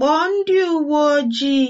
Kpọọ ndị uwe ojii.